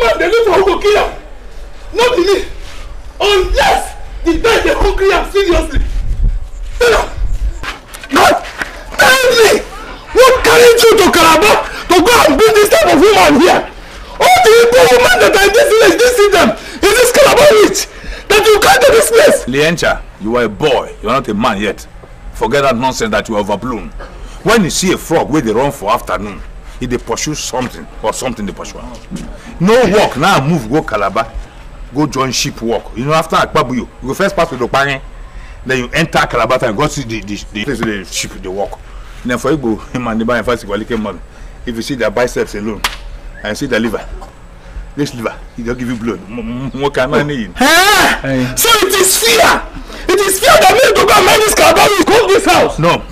woman dey live for who go kill am no be me unless the guy dey hungry am seriously tell am no tell me what carry you to calabar to go and bring this type of woman here all the igbo women that are in this village dey see them is this calabar witch that you come to this place. liencha you are a boy you are not a man yet forget that nonsense that you overblown when you see a frog wey dey run for afternoon He dey pursue something or something dey pursue am no work now move go calabar go join ship work you know after akpabuyo you go first pass with okpanyen then you enter calabar town go see the the the place where the ship dey work then for igbo him and the man fight igbalike man if you see their biceps alone and see their liver this liver he don give you blood nwoke anani yin. so it is fear it is fear that make you go and mind this calabar you go this house. no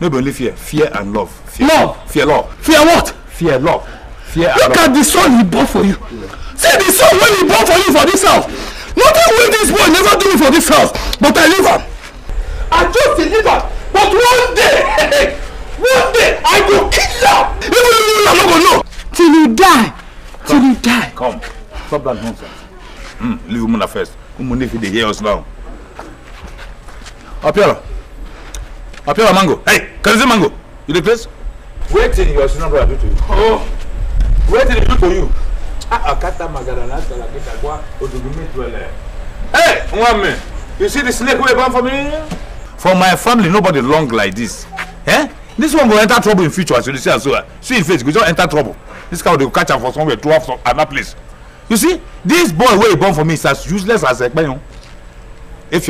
no be only fear fear and love. Fear love. fear love fear what. fear love fear and look love. at the son he born for you yeah. see the son wey he born for you for this house nothing wey this boy never do me for this house but i leave am i just dey leave am but one day one day i go kill am even if you no go know. till you die come, till you die. come stop that nonsense Hmm. leave umuna first umuna if you dey hear us now. Apiola. Apia mango. Hey, can I see mango? You the place? till your senior brother do to you. Oh, wait till he do to you. Ah, akata ah, magara na tala kita kwa odugumi tuele. Hey, mwame, you see the snake wey born for me? For my family, nobody long like this. Eh? This one will enter trouble in future as you see as well. See in face, go just enter trouble. This cow dey catch am for somewhere, to am for another place. You see, this boy wey he born for me is as useless as If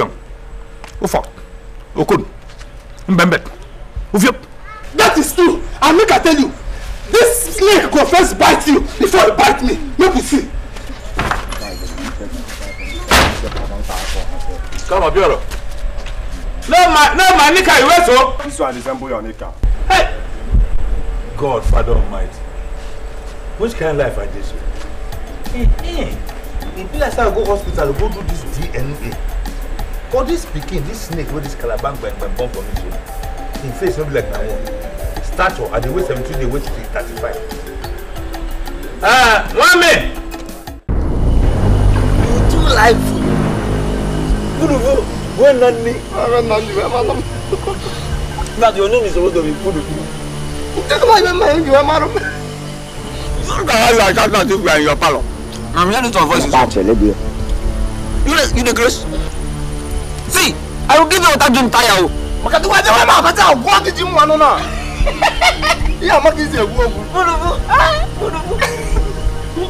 oh fuck, oh Okun mbembet ofiop. that is true and make i tell you this snake go first bite you before e bite me make we see. come abioro no my no my nika you wait o. Oh. this one resemble your nika. Hey. god father almighty which kind of life i dey so. e be like say i go hospital go do this dna for this pikin this snake wey dis calaban gbẹngbẹn born for me so im face no be like my own stature i dey weigh seventy-two dey weigh thirty-five. Ah, mami. you too lively. pudupu wey nani. wey nani wey ma lọ. your name is supposed to be pudupu. take my name my name wey ma lọ. you gats have your accountant if you are in your parlour. na me hear the tone voice is up. you dey you dey See, I will give you water drink tire. Makati wa dewa ma makati a gwa kiji mu anu na. Iya ma kiji ewu ogu. Burubu. Ah, burubu.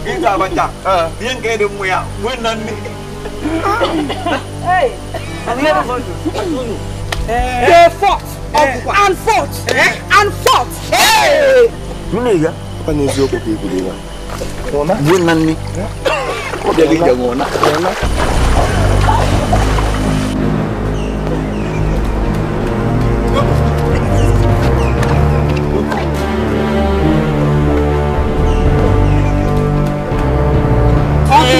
Ita banja. Eh. Bien que de mu ya. Mu na ni. Hey. Ani na bonjo. Eh. eh, eh, eh They fought. And fought. And fought. Hey. Mune ga. Kwa nezi oku pe kudiwa. Ona. Mu na ni. Ko bi ga ngona. Ona.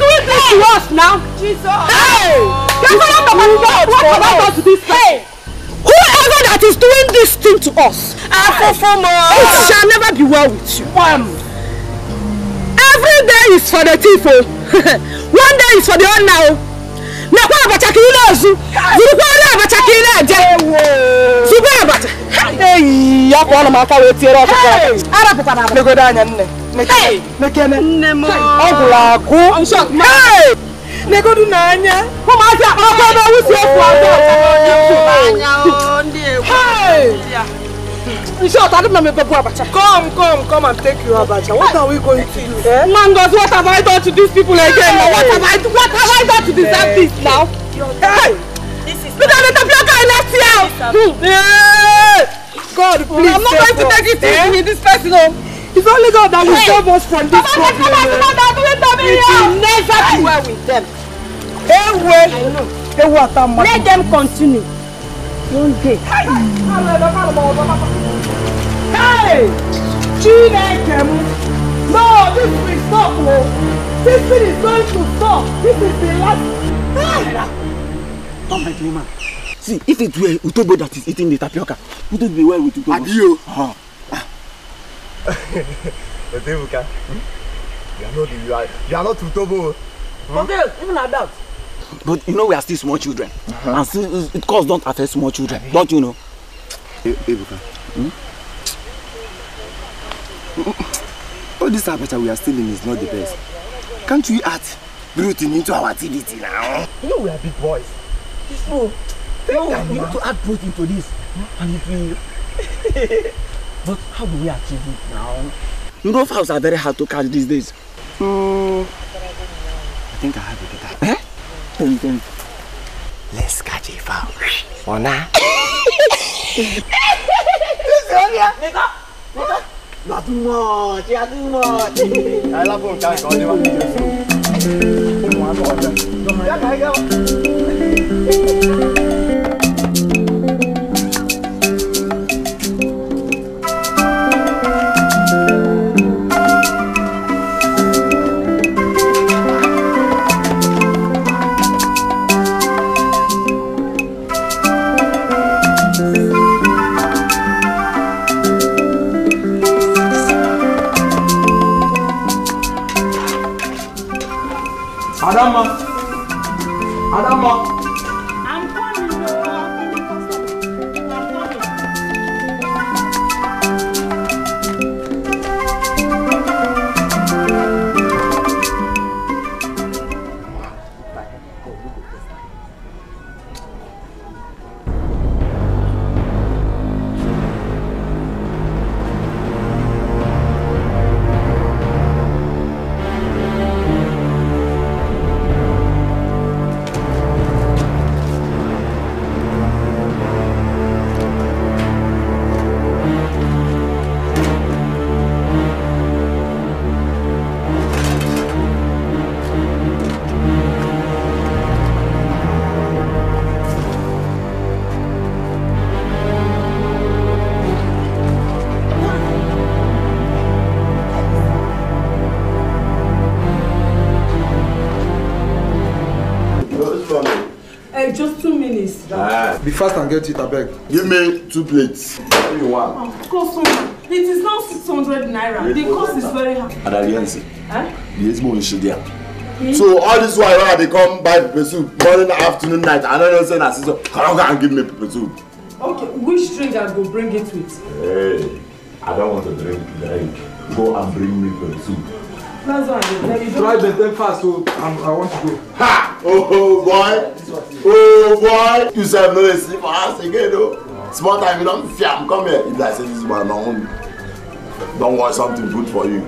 doing this to us now? Jesus. Hey! That's what I'm about to do. What to this time? Whoever that is doing this thing to us, Afofomo, it shall never be well with you. Wham! Every day is for the thief. Oh. One day is for the honor. Nakwa oh. abacha kiri na ozu. Zurukwa ori abacha kiri na aje. Zugbe abacha. Hey, ya kwa ọnụ m aka wee tiere ọkụkọ. Arapụtara m. Legodo anya nne nekene ọ gụrụ akụ negodu n'anya ụmụaka ọkụ ebe wusi efu abụọ short, I don't remember Abacha. Come, come, come and take your Abacha. What are we going to do? Eh? Mangos, what have I done to these people again? Hey. What have I what have I done to deserve hey. this now? Hey! This is Because the tapioca is left here! God, please. I'm not going to take it easy with eh? this person home. Oh. It's only God that will hey. save us from this problem. It will never be well with them. Ewe, ewe atama. Let them continue. One day. Hey, Chineke mu. No, this will stop. No. This thing is going to stop. This is the last. Come, my dreamer. See, if it were Utobo that is eating the tapioca, would it be well with Utobo. Adio. Uh ah. -huh but Ebuka, hmm? you are not you are are not Utobo. Hmm? Forget even adults. But you know we are still small children, uh -huh. and still, it cause don't affect small children, don't you know? E Ebuka, hmm? all oh, this aperture we are still in is not the best. Can't we add routine into our TDT now? You know we are big boys. So, no, we need to add protein to this, hmm? and if we. But how do we achieve it now? You know, fowls are very hard to catch these days. Mm. I think I have a better. Eh? Then, then. Let's catch a fowl. Mona. Nigga! Nigga! Not too much, yeah, too much. I love you, guys. I love you. I love you. I love you. kama Be fast and get it, I beg. Give me two plates. Give me one. Oh, customer, it is now 600 naira. The cost is very high. And Adaliansi. Eh? Yes, mo nshi dia. So all this while they come buy pepper soup morning, afternoon, night, I no know say na season. Come and give me pepper soup. Okay, which drink I go bring it with? Hey, I don't want to drink drink. Go and bring me pepper soup. That's why you. Try the thing fast so I'm, um, I want to go. Ha! Oh, oh boy. Oh boy. You said no sleep for us again though. Small time you don't fiam come here. If I say this man on don't want something good for you.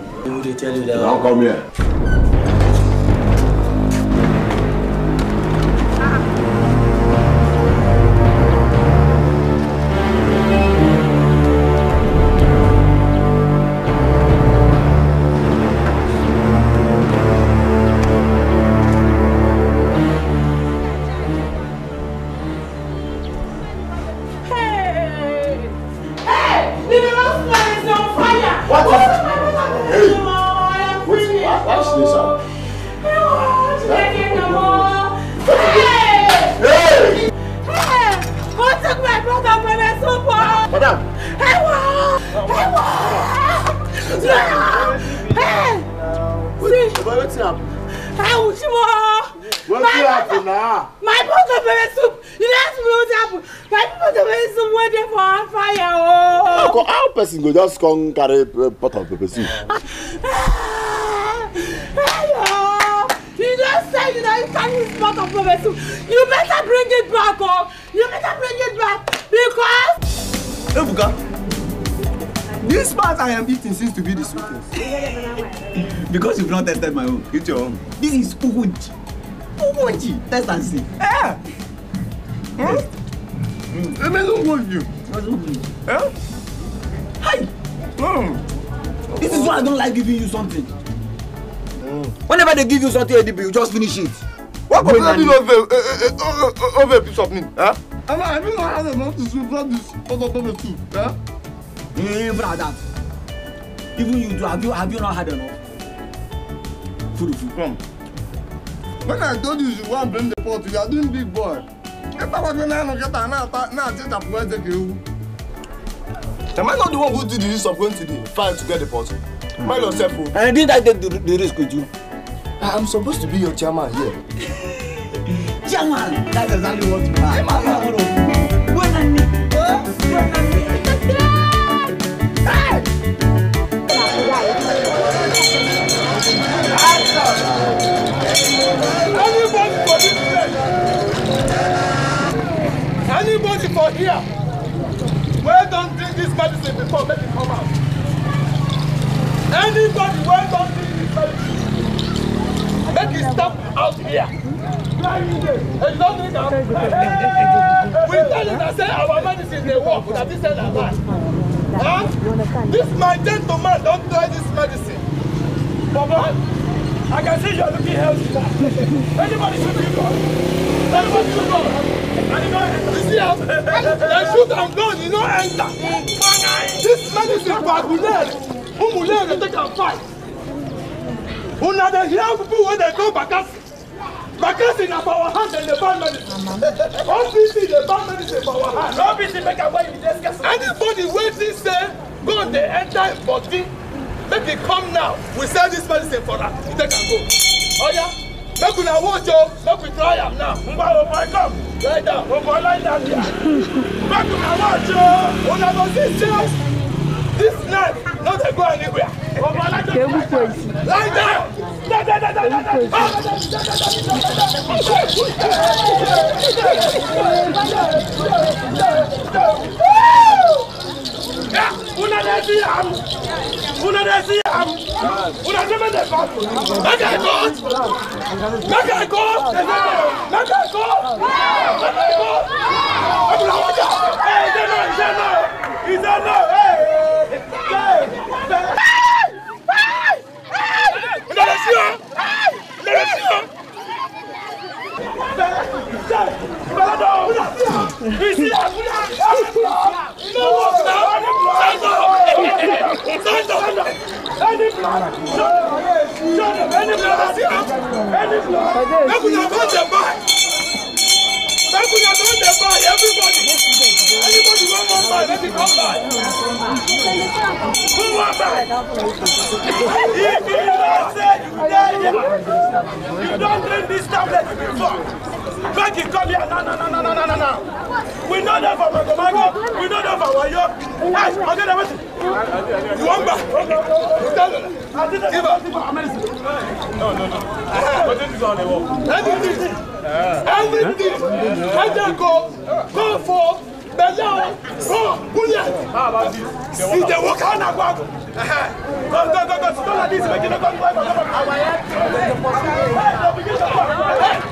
They tell you that. Don't come here. con eh, You just said you know you You better bring it back, oh! You better bring it back because. Ebuka, this part I am eating seems to be the sweetest. because you've not tested my own. Eat your own. This is ugunji. Ugunji. Test and see. Yeah. Hmm? Yes. Mm. It doesn't you. Doesn't work you. Yeah? Hi. Hmm. This is why I don't like giving you something. Mm. Whenever they give you something, ADB, you just finish it. What could that be over, a piece of me? Huh? I don't know how they want to sweep that this other number two. Huh? Even at that. Even you do, have you, have you not had enough? Food, food. Come. When I told you you want to blame the pot, you are doing big boy. If I was going to get a now, I think I'm going to take you. Am I not the one who did the risk of going to the fire to get the pot? Mm. Mind yourself, oh. And didn't I take the, the risk with you? I am supposed to be your chairman here. Yeah. chairman? That's exactly what you are. Chairman, no. When I need, oh, when I need. Hey! Anybody for this Anybody for here? wey don drink this medicine before make it come out anybody wey don drink this medicine make e stop out here if you don drink am we tell una say our medicine dey work na this thing na lie ah this my gentleman Don't try this medicine for blood. I can see you are looking healthy. Anybody should be gone. Anybody should go. you know, you see how they shoot and gun, you know, enter. This man medicine for Agulere, Umulere, they a fight. Una dey hear people when they go Bakasi. Bakasi na for our hand and the ban medicine. OPC the ban medicine for our hand. No BC make am where you dey scarce. Anybody wey think say gun dey enter im body make e come now we sell this medicine for her. you take am go oh, yeah. make una watch o oh. make we try am now ngba o oh, come lie down o boy lie down there make una watch o una go see say this knife Not dey go anywhere o boy lie down lie Vous n'avez pas de vous. Vous n'avez jamais des Mec à gauche. Mec à gauche. Mec à Ils a le On a vous là, vous vous Stand up! Any blood! Shut up! Any blood! Any blood! Make una turn the back! Make we turn the back, everybody! Anybody want one back, let it come by. Who want back? If you don't say you die, you don't drink this tablet before! Make it come here. No, no, no, no, no, no, no. We know that for Magomago. We know that for Wayo. Hey, I'll get everything. You want back? Give up. No, no, no. But this is on the wall. Everything. Everything. Let them go. Go for. Bẹ̀lẹ́ go, go, Bullet. Ìdè wo ká nà gbọ́? Go, go, go, go, sit like this. Make it no go, go, go, go. Àwọn yẹn ti ń bẹ̀rẹ̀ i. to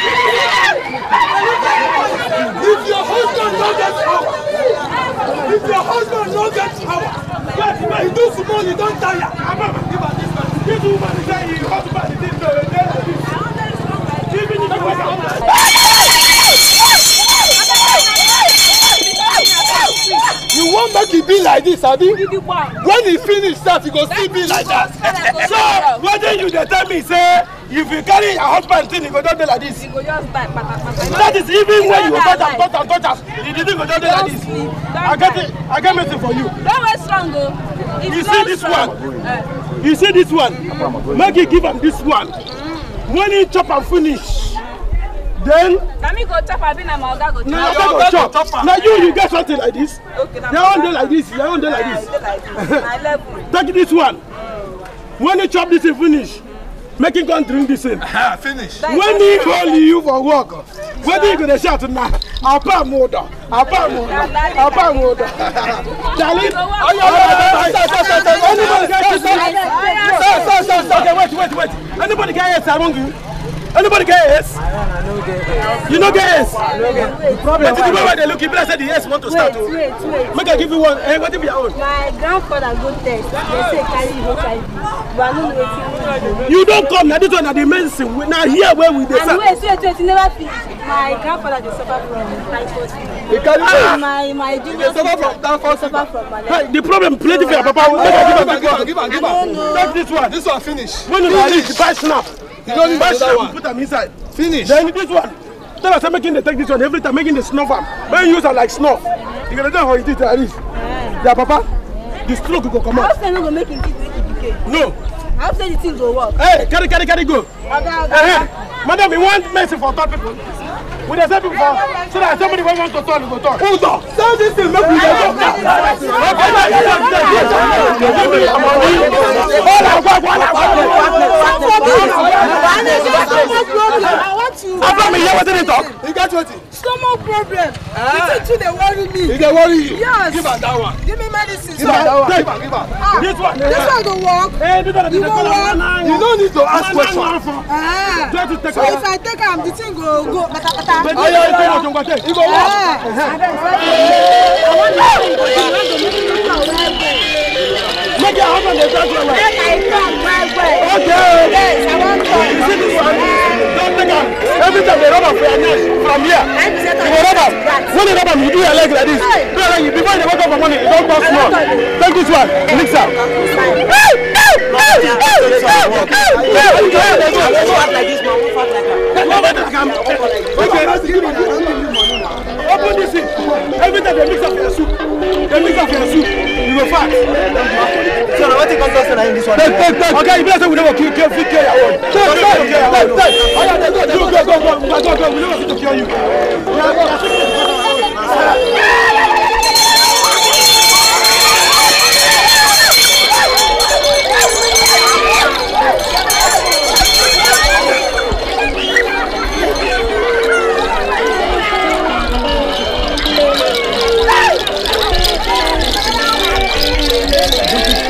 If your husband no get power, if your husband no get power, wait, he do small, you don't tire. Give her this man, give woman, he get here. Sabi, when he finish sef he go still be like that so wetin you dey tell me say if you carry your husband thing he go just dey like this that is even when you go touch am touch am touch am the thing go just dey like this i get it i get message for you. Oh. Uh. you see this one you see this one make you give am this one when he chop am finish then na me go chop abi na my oga go chop na your oga go chop na you you get something like this okay na my own dey like this your own dey like this take this one when you chop this thing finish make him come drink this thing finish when he call you for work wetin you go dey shout na apa moda apa moda apa moda darling oyo oyo stop stop stop stop anybody get kiss me stop stop stop stop wait wait wait anybody get yes among you. Anybody get yes? I don't, I don't get yes. You no get yes? I don't get yes. The problem but the way they look, people said the yes want to wait, start. Wait, wait, Make I give you one. Hey, eh, what if your own? My grandfather go test. They say carry HIV. But I don't know waiting. You don't come. Now this one, now the main thing. Now here where we dey. And wait, wait, wait. You never finish. My grandfather dey suffer from typhoid fever. He carry ah. my my junior suffer from typhoid fever. Suffer from malaria. Hey, the problem plenty for your papa. Make I give am give am give am. Take this one. This one finish. When you reach, buy snap. You don't need another one. Put them inside. Finish. Then this one. Tell us making the take this one every time, making the snuff am. When you use it like snuff, you gonna know how it is at least. Yeah, papa. The stroke go come out. How say no go make him take it No. How say the thing go work? Hey, carry, carry, carry, go. Okay, okay. Uh -huh. Madam, we want mercy for third people we dey send people for so that somebody wey want to talk go talk. who talk sell this thing make we dey talk now. Abba mi hear wetin dey talk. You get wetin. Stomach problem. The thing too dey worry me. E dey worry you. Yes. Give am that one. Give me medicine. Give am that one. Give am give am. Ah. This one. This one go work. Hey, this one dey work. You no need to ask question. Ah. So if I take am, the thing go go kpatakpata. Ayo iko mo jongwa te. Iko mo. Make your husband dey talk well. Make I talk well well. Okay. Yes, I want to. You see this one? Don't take am. Every time they rub am for your neck from here. You go rub am. When they rub am, you do your leg like this. Do your leg. Before you wake up for morning, you don pass small. Take this one. Mix am. Open this thing. Every time they mix up your soup, they mix up your soup. You go fat. So now what you come to say in this one? Okay, you better say we never kill, kill, kill your own. Kill, kill, kill your own. Go, go, go, go, go, go. We never fit to kill you. We are fit to kill your own.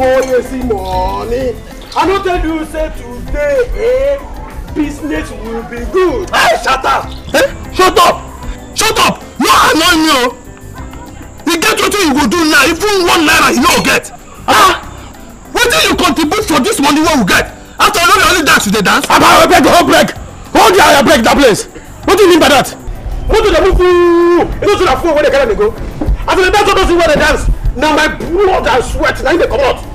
boy see money. I don't tell you say today, eh, business will be good. Hey, shut up! Hey, eh, shut up! Shut up! No annoy me oh. You get wetin you go do now, even one naira you no get. Ah! ah. What Wetin you contribute for this money wey we get? After all, only dance you dey dance. Aba, break the whole break. Hold your I break that place. What do you mean by that? What do they move? You know, so that fool when they carry me go. After the dance, don't see where they dance. Now my blood and sweat, now you dey comot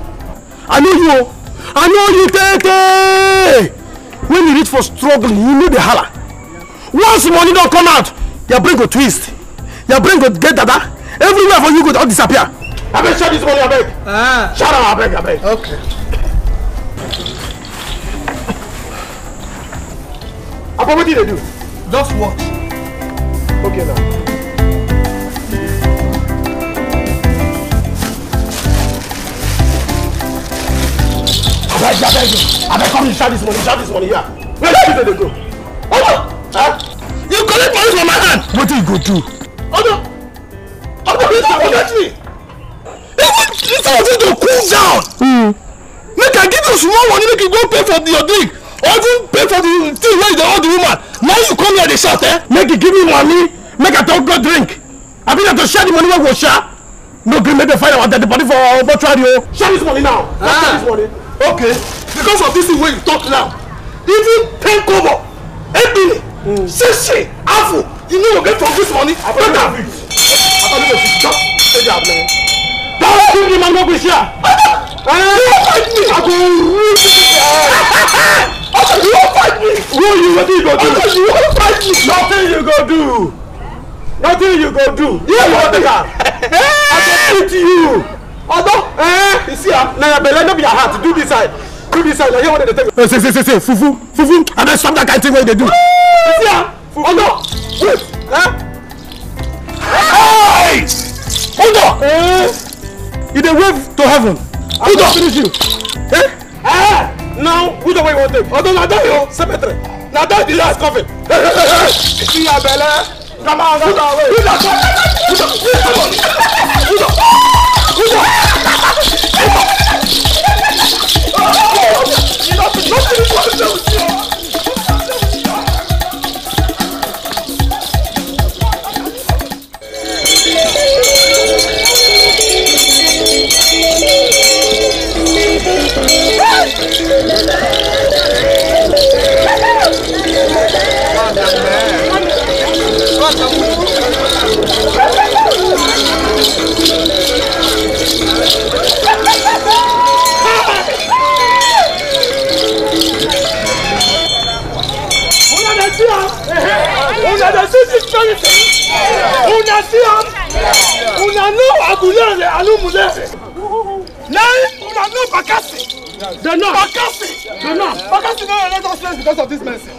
i know you o i know you tey when you reach for struggle you know the hala once money don't come out your brain go twist your brain go get dada everywhere for you go all disappear I abeg share this money abeg ah. share am abeg abeg. okay. I wetin you dey do? Just watch. Okay now. Where's your bedroom? I beg come inside this money, inside this money here. Where did they go? Hold on! Huh? You collect money from my hand! What do you go do? Hold on! Hold on, listen, forget me! Even if I want you to cool down, mm. make I give you small money, make you go pay for your drink, or even pay for the thing where you dey hold the woman. Now you come here dey shout, eh? Make you give me money, make I don't go drink. I be there to share the money wey go share. No gree make dem find that the body for mortuary o. Oh. Share this money now. ah. share this ah. money okay because of this thing wey you talk now even ten kobo ebile mm. sese afu you no go get from this money make am just take am now. báwo ni kí ni màá gbé sí à. yóò fight me. àgbo rú sí i. ọkọ ni yóò fight me. wo you wetin you go do. ọkọ ni yóò fight me. nothing you go do nothing you go do. yóò wọ́n ti kà. i go beat you ọgbọ́ eh? you see ah now your belle be your heart do this side do this side na here one dey take. ṣe ṣe ṣe ṣe fufu fufu and then stop that kind thing what they do. you see ah ọgbọ́ wait. Hey! Hold on! Eh? You dey wave to heaven. Hold on! finish you. Eh? Ah! Now, who the way you want take? Although now that you cemetery. now that the last coffin. Hey, hey, hey, hey! See your belle. Come on, come on, wait. Who the? Who the? Who the? Who the? 아, 나 지금 완전 웃겨. unadadisi spirit unasia unanu agulere alumulere lẹ́yìn unanu bakasi dena bakasi dena bakasi no let us rest because of this mercy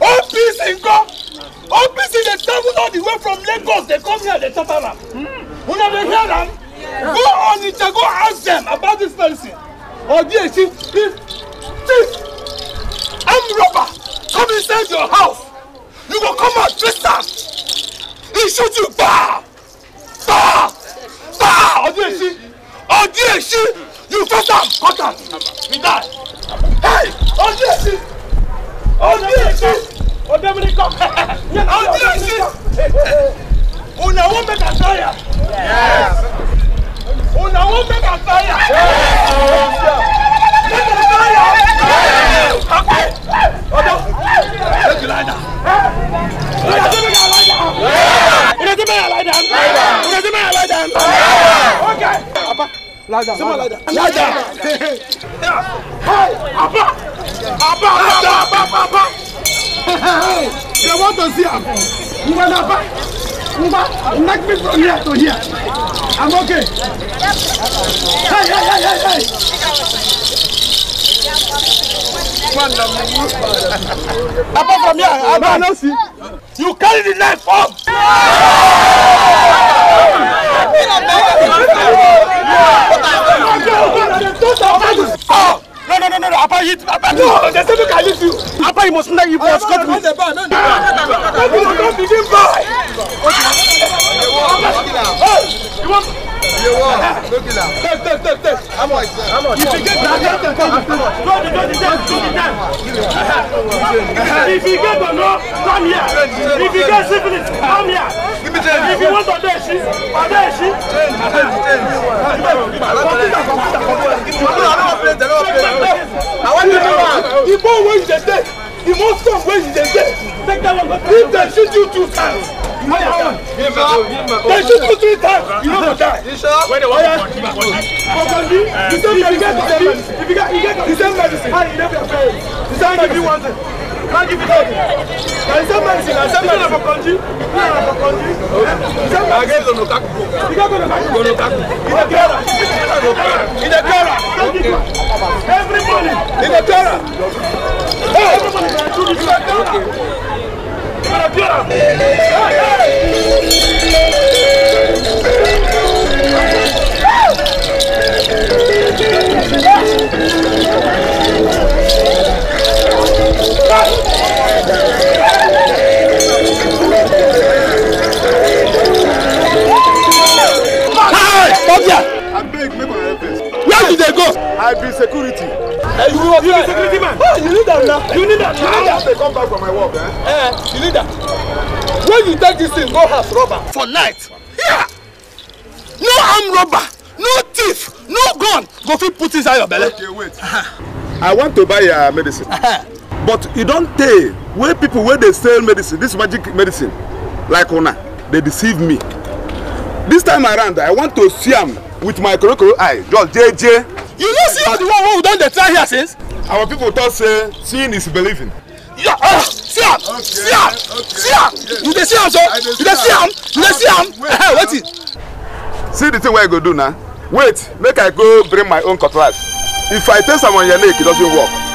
OPC nkọ OPC dey travel all the way from Lagos They come here dey chop am una dey hear them. go on Ija go ask them about this mercy Odiechi chief chief armed robber come inside your house you go come out twist am he shoot you ba, ba, ba. ọdún èsì you cut am cut am he die hey ọdún èsì ọdún èsì ọdẹmìnì kọ ọdún èsì una wan make am tire una wan make am tire make am tire. Lada. Sima lada. Lada. Hey, Abba. Abba, Abba, Abba, Abba. Hey, they want to see him. Mba, Abba. Mba, knock me from here to here. I'm okay. Hey, hey, hey, hey, hey. Apart from here, I don't know. See. You carry the knife up. Oh, no, no, no, no, no, Apa, hit, Apa, no, they said you I leave you. Apa, you must not, you must cut me. Don't begin by. If you get the law, come here. If you get syphilis, come here. If you want to dare she, or dare she. I want you to know. Igbo wey you dey take. The most of where you get, take that one. If they shoot you two times, you know that one. They shoot you three times, you know that die. When they want to continue, continue. The same medicine. If you get the same medicine, you never fail. The same medicine. Kandi vitabu. Kalisema nisina sema na bokondi. Na bokondi. Sema agezo no kaku. Igago no kaku. Gono kaku. Ina kera. Ina kera. Everybody. Ina kera. Hey. Ina kera. Ina kera. Hey. Hey. Stop there! I beg, make my Where do they go? I be security. you be security man? you need that You need that. You need that. They come back from my work, eh? Eh, you need that. When you take this thing, go house robber. For night. Yeah. No armed robber, no thief, no gun. Go fit put inside your belly. Okay, wait. I want to buy your medicine but you don't tell where people where they sell medicine this magic medicine like una they deceive me this time around i want to see am with my korokoro eye just jeje. you no see all the one wey we don dey try here since. our people talk say seeing is believing. Yeah, uh, see am okay, see am okay. see am yes. you dey see am so you dey see am you dey see am ehe wetin. see the thing wey i go do now. wait make i go bring my own cutlass if i taste am on your neck e doesn't work.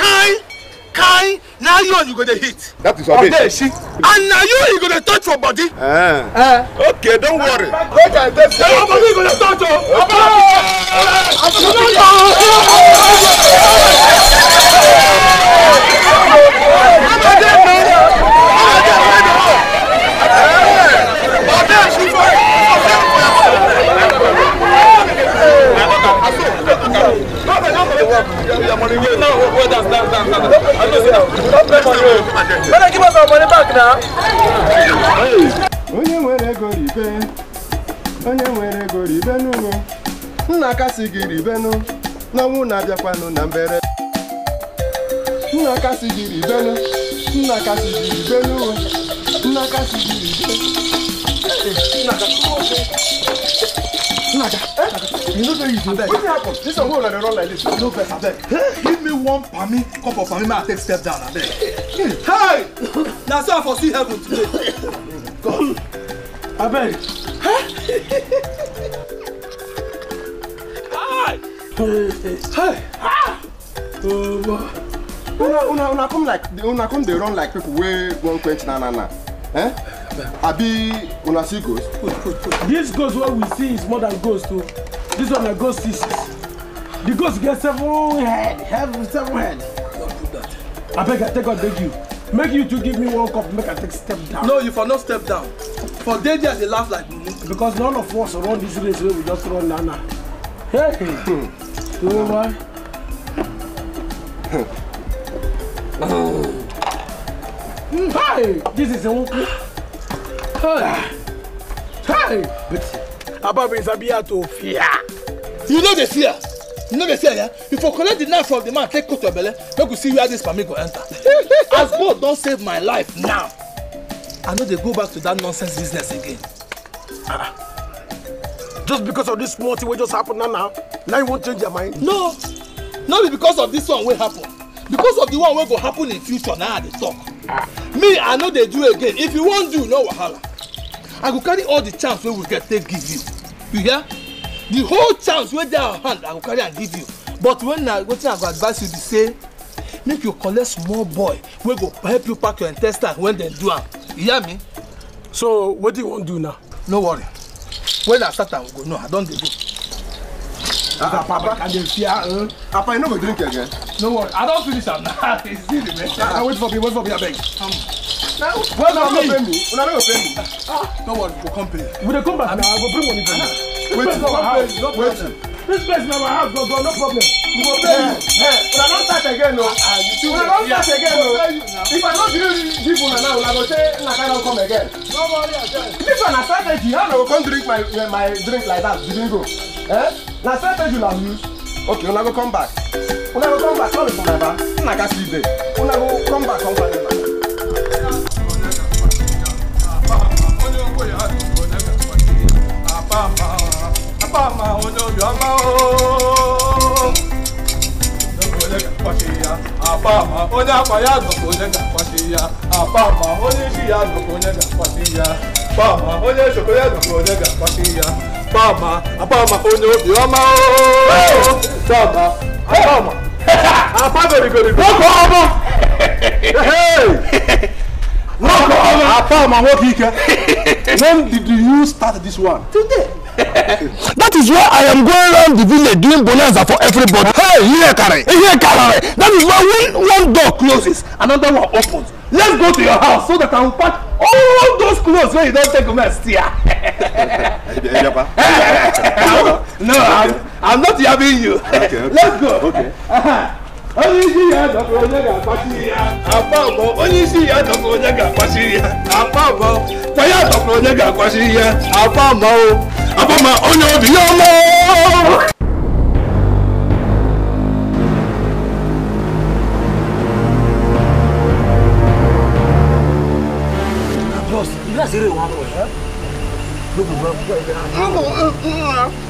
kind kind na iron you go dey hit. that is obe obe and na you you go dey touch your body. Uh. Uh. okay don't worry. make i dey say your body go dey touch o. oba oba oba. Go, go, go. Eh. Onye nwere ego ribe, onye nwere ego ribe nna gị n'ọnwụ na-abịakwanụ na mbere. Nna gị ribenụ, nna gị ribe nna Naja, eh? you know say you do that. Wetin happen? This one wey una dey run like this. No vex abeg. Give me one palmy cup of palmy make I take step down abeg. Hey! Na so I for see heaven today. God. Abeg. Hi! Hi! Una una una come like una come dey run like people wey wan quench na na na. Eh? abi una see ghost. this ghost what we see is more than ghost too. Oh. this one na ghost is. the ghost get several head Have several head. I beg i take god beg you make you to give me one cup make i take step down. no you for no step down for dey there dey laugh like because none of us run this race wey we just run now now. hey you know why. Hmm. hey this is a one. Ababin Sabia to fear. You know the fear. You know the fear, yeah? If you collect the knife from the man, take coat your belly, make you see where this family go enter. As God don't save my life now, I know they go back to that nonsense business again. Ah, ah. just because of this small thing we just happened now now, now you won't change your mind? No, not because of this one will happen. Because of the one will go happen in future now they talk. Ah. Me, I know they do again. If you won't do, no wahala i go carry all the chance wey we get take give you you hear the whole chance wey dey our hand i go carry am give you but when na wetin i go advise you be say make you collect small boy wey go help you pack your intestine when dem do am you hear me. so wetin you wan do now. no worry when i start am we go know i don dey go. ah, ah papa i dey fear um. papa you no go drink again. no worry i don finish am now e still dey mess. Ah, ah wait for me wait for me abeg. Well, no, no, pay me. Una no pay me. Don't worry, we'll come pay. We dey come back I will bring money for you. Wait, no house. No waiting. This place na our house, no no problem. We will pay you. Una not start again, no. We Una not start again, no. If I no gree give you now, una go say una carry come again. No worry, again. This one na strategy. How una go come drink my my drink like that? You didn't go. Eh? Na strategy una use. Okay, una go come back. Una go come back. No be for my bar. Una gats leave there. Una go come back come find una. Apa? àpàmà olórí ọmọ ooo. Gbogbo lè kà kọ́ sí ya, àpàmà oní àpáyà gbogbo lè kà kọ́ sí ya, Apa? oní ṣìyà gbogbo lè kà kọ́ sí ya, àpàmà oní ṣòkòyà gbogbo lè kà kọ́ sí ya, àpàmà àpàmà oní obì ọmọ ooo. Dàgbà àpàmà àpá gòrìgòrìgò. Ó kọ́ No problem. Apart my work here. When did you start this one? Today. that is why I am going around the village doing bonanza for everybody. Hey, here carry, here carry. That is why when one door closes, another one opens. Let's go to your house so that I will pack all those clothes when you don't take them as here. no, I'm, I'm not yabbing you. Okay, okay. Let's go. Okay. Uh -huh onye isi ya dọkpụ onye ga-akpasiri ya Apa abụọ onye isi ya dọkpụ onye ga-akpasiri ya Apa abụọ kwa ya dọkpụ onye ga-akpasiri ya Apa abụọ apa ma onye obi ya ọma Boss, you guys are really one for it, huh? Look,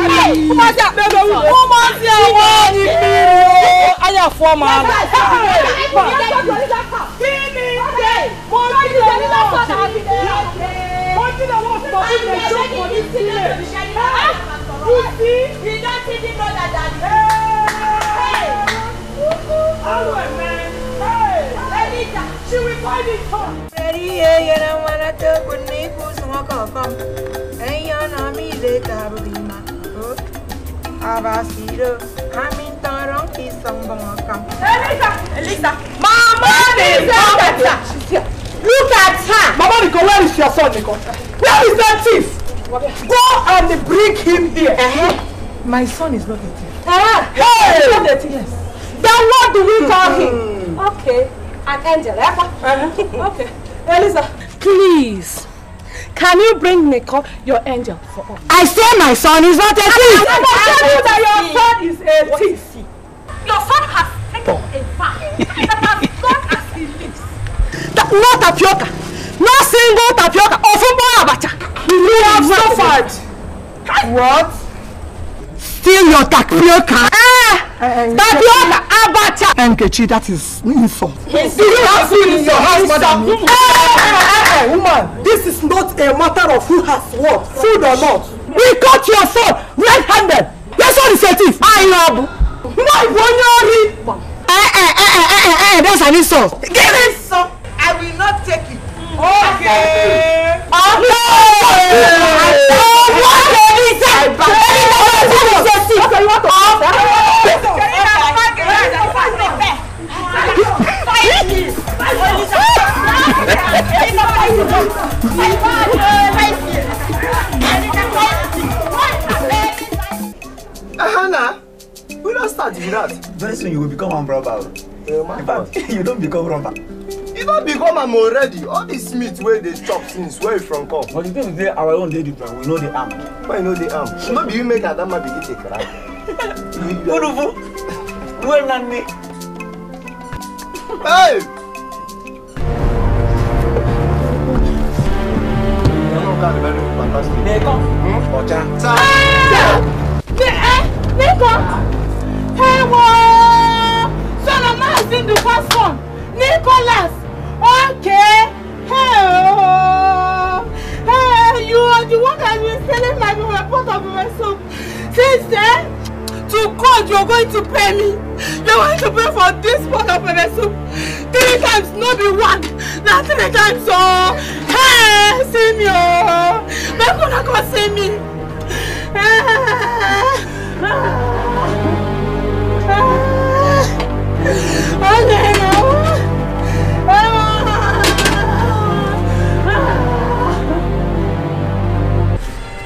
wọ́n máa ti àwọn ìpinnu. ayà fún ọmọ kí ni ṣe mo ti lè ní lọ́sọ̀tà àti ìyá mo ti lè wọ́n sọ fún mi jókòó ní sílẹ̀. kú sí. iná ti di bọ́dà dàdí. Awo ẹ̀mẹ́ leader. She will find it hard. Ready, yeah, you don't wanna talk with me, who's more confirmed. And you're not me later, Rima. Okay. Abasiro, Amintaron qui Elisa, Elisa, Mama is look at her. Look at her. Mama, Nico, where is your son, Nico? Where is that thief? Go and bring him here. Uh -huh. My son is not a thief. Uh uh-huh. -huh. Hey! He's not a thief. Yes. Then what do we call him? Hmm. Okay, an angel. Eh? Uh -huh. okay, Elisa. Please. Can you bring Nicole, your angel, for us? I say my son is not a thief. I will tell you that your son is a thief. Your son has taken oh. a vow that as long as he lives. That, no tapioca. No single tapioca. Ofumbo abacha. we have suffered. What? steal your tapioca. Ah! Eh, eh, tapioca eh. abacha. Nkechi, that is insult. Yes. Do you have food your house, madam? Eh, eh, woman, this is not a matter of who has what, food or not. We caught your son red-handed. Your son is a thief. I love. My boy, Eh, eh, eh, eh, eh, eh, that's an insult. Give it some. I will not take it. Okay. Okay. okay. okay. okay. okay. okay. okay. okay you want to oh, Hannah, we don't start with that. Very soon you will become a robber. Yeah, In fact, you don't become robber. You don become am already. All this meat where they chop since where wey from come. But the thing is say our own dey different. We know the arm. Why you no dey armed? No be you make Adama begin dey cry. Udufu, duwe nani? Hey! Neko. Ọjà. Neko. Ewo! Solomon is in the first one. Nicholas. Okay. Hey, hey, you are the one that has been selling my report of myself. Since then, to God you are going to pay me. You are going to pay for this pot of pepper soup. Three times, not be one. Not three times o. Oh. Hey, see me o. Oh. Make una see me.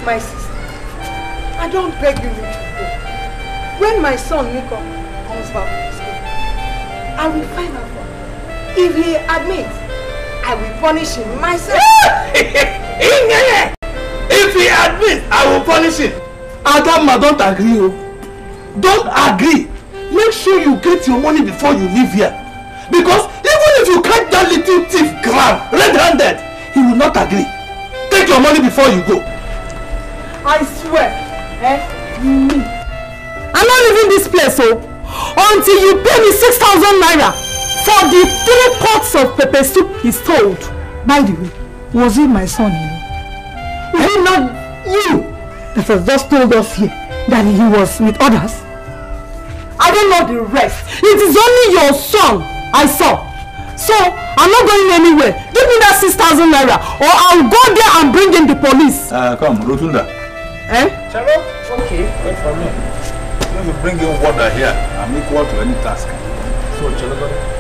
My sister, I don't beg you. When my son Nico comes back from school, I will find out for If he admits, I will punish him myself. If he admits, I will punish him. Adama, don't agree. Oh. Don't agree. Make sure you get your money before you leave here. Because even if you catch that little thief grab red-handed, he will not agree. Take your money before you go. I swear, eh, me. I'm not leaving this place o oh. until you pay me six thousand naira for the three pots of pepper soup he sold. By the way, was it my son? You know? is it not you that has just told us here that he was with others? I don't know the rest. It is only your son I saw. So, I'm not going anywhere. Give me that 6,000 naira or I'll go there and bring in the police. Uh, come, Rotunda. Eh? Charo? Okay, wait for me. If you bring in water here, I'm equal to any task. So, Chalabari,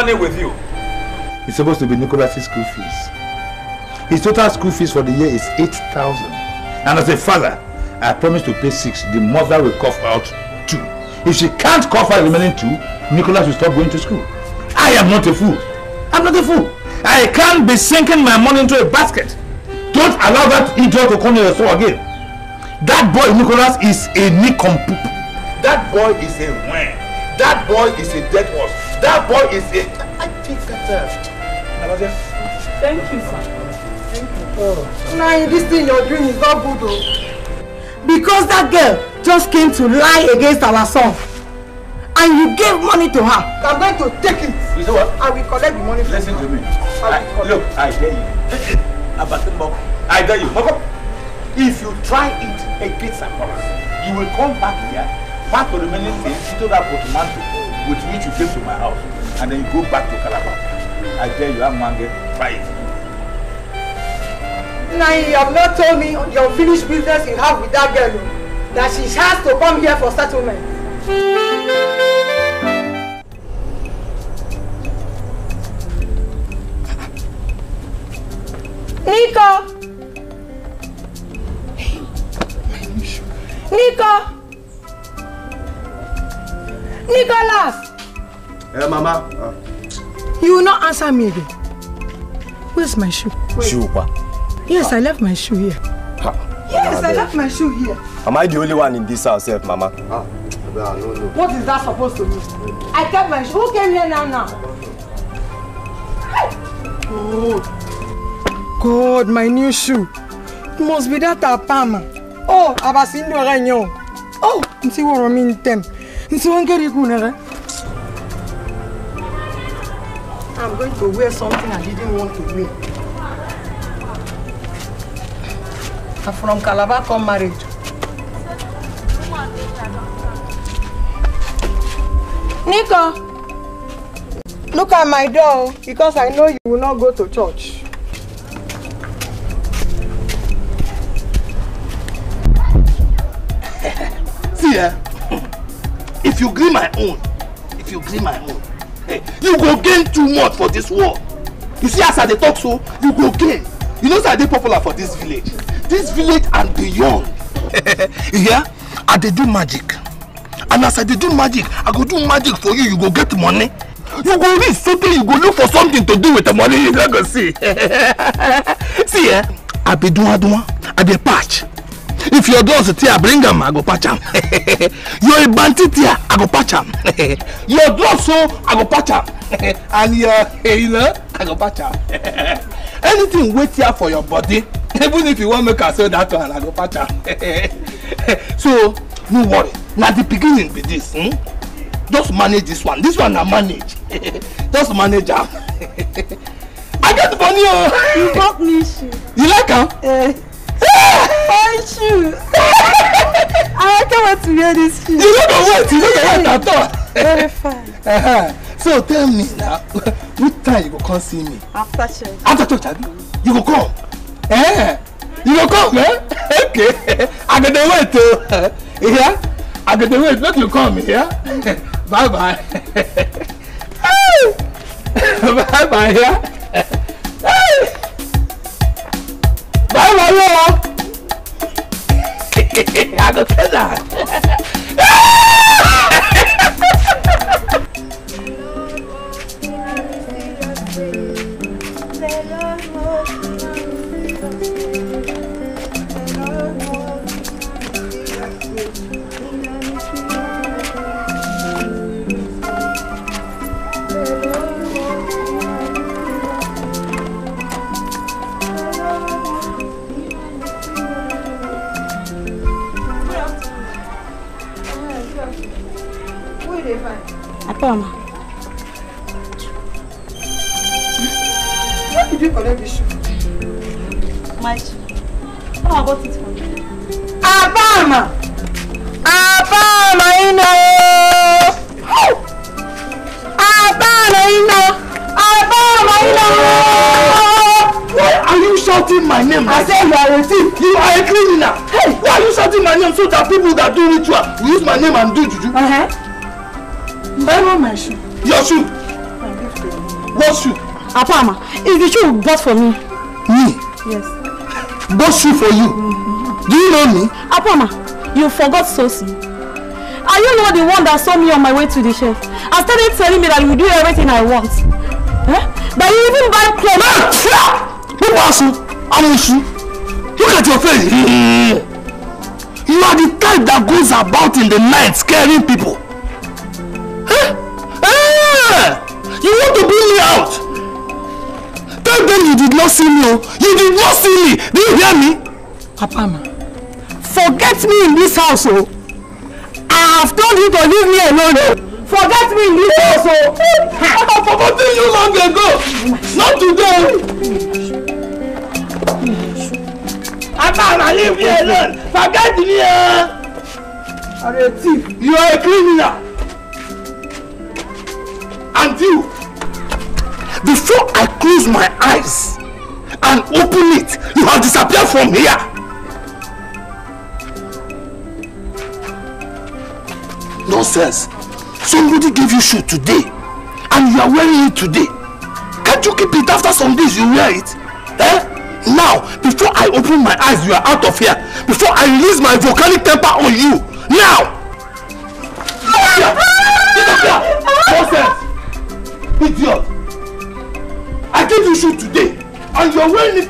money with you? It's supposed to be Nicholas's school fees. His total school fees for the year is 8,000. And as a father, I promise to pay six. The mother will cough out two. If she can't cough out the remaining two, Nicholas will stop going to school. I am not a fool. I'm not a fool. I can't be sinking my money into a basket. Don't allow that idiot to come to your store again. That boy Nicholas is a nincompoop. That boy is a wang. That boy is a dead horse. That boy is a. I think that. Uh, Thank you, sir. Thank you. Oh. Nah, this thing you're doing is not good, though. Because that girl just came to lie against our son. And you gave money to her. I'm going to take it. You know what? I will collect the money. Listen to me. I, I look, I dare you. I dare you. If you try it against Akora, you will come back here. Part of the remaining things, you told her for tomato with which you came to my house, and then you go back to Calabar. I dare you, I'm hungry. Try it. Now you have not told me your unfinished business you have with that girl, oh, that she has to come here for settlement. Nico! Nico! Nicholas! Hey, Mama. Uh. You will not answer me again. Where's my shoe? Wait. Shoe, pa? Yes, ah. I left my shoe here. Ha. Yes, Mama, I left my shoe here. Am I the only one in this house, F, Mama? Ah. No, no, no. What is that supposed to mean? I kept my shoe. Who came here now, now? Oh. God, my new shoe. It must be that Apama. Oh, Abasindo Renyo. Oh, see what I mean, Tem. Isiwankeri Kunere. I'm going to wear something I didn't want to wear. I'm from Calabar come married. Nico, look at my door because I know you will not go to church. See ya if you gree my own if you gree my own hey, you go gain too much for this war. you see as i dey talk so you go gain you know say i dey popular for this village this village and beyond you hear i dey do magic and as i dey do magic i go do magic for you you go get money you go reach sotey you go look for something to do with the money you no go see see eh i be dunwa dunwa i be patch if your dog sit here bring am i go patch am your bandit here i go patch am your dog so oh, i go patch am and your hyena eh, i go patch am anything wey tear for your body even if you wan make am sell that one i go patch am so no worry na the beginning be this hmm? just manage this one this one na manage just manage am i get money o. Oh. you bought me shoe. you like am. Uh. Fine shoes. I don't want to hear this. shoes. You don't know what? You don't know what at all. Very fine. Uh -huh. So tell me now, which time you go come see me? After church. After church, abi? You go come. Eh? You go come, eh? Okay. I go dey wait o. Oh. Yeah? I get the wait make you come, yeah? Bye bye. bye bye, yeah? báyìí wáyé o. I go tell that. for me. Me? Yes. Those shoes for you. Mm-hmm. Do you know me? Apoma, you forgot Sosi. Are you not the one that saw me on my way to the chef? And started telling me that you do everything I want. Huh? That you even buy clothes. Man, shut up! Who was you? I'm Look at your face. Mm-hmm. You are the type that goes about in the night scaring people. see me o you did not see me do you hear me. papa ma forget me in this house o i have told you to leave me alone o forget me in this house o. i have forgotten you long ago not today. papa ma leave me alone forget me o. Eh? are a thief you are a criminal and you before I close my eyes disappear from here. Nonsense. Somebody gave you shoe today and you are wearing it today. Can't you keep it after some days you wear it? Eh? Now, before I open my eyes, you are out of here. Before I release my volcanic temper on you. Now! Get up here! Get up here! Nonsense! Idiot! I gave you shoe today and you are wearing it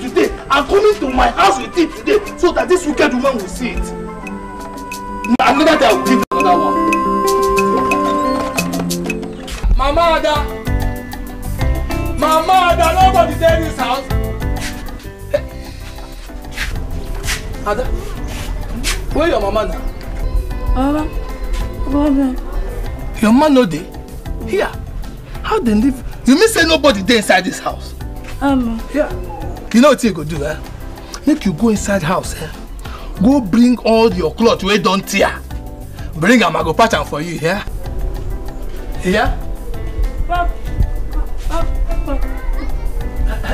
I'm coming to my house with it today so that this wicked woman will see it. Another day I will give another one. My mother, my mother. nobody dey in this house. Ada, where your mama Ah, Baba, Baba. Your man no dey? Here. How they live? You mean say nobody dey inside this house? Um, yeah you know what you go do eh make you go inside house eh go bring all your cloth where don't tear bring am i go patch am for you Yeah? hear. Pop, pop, pop.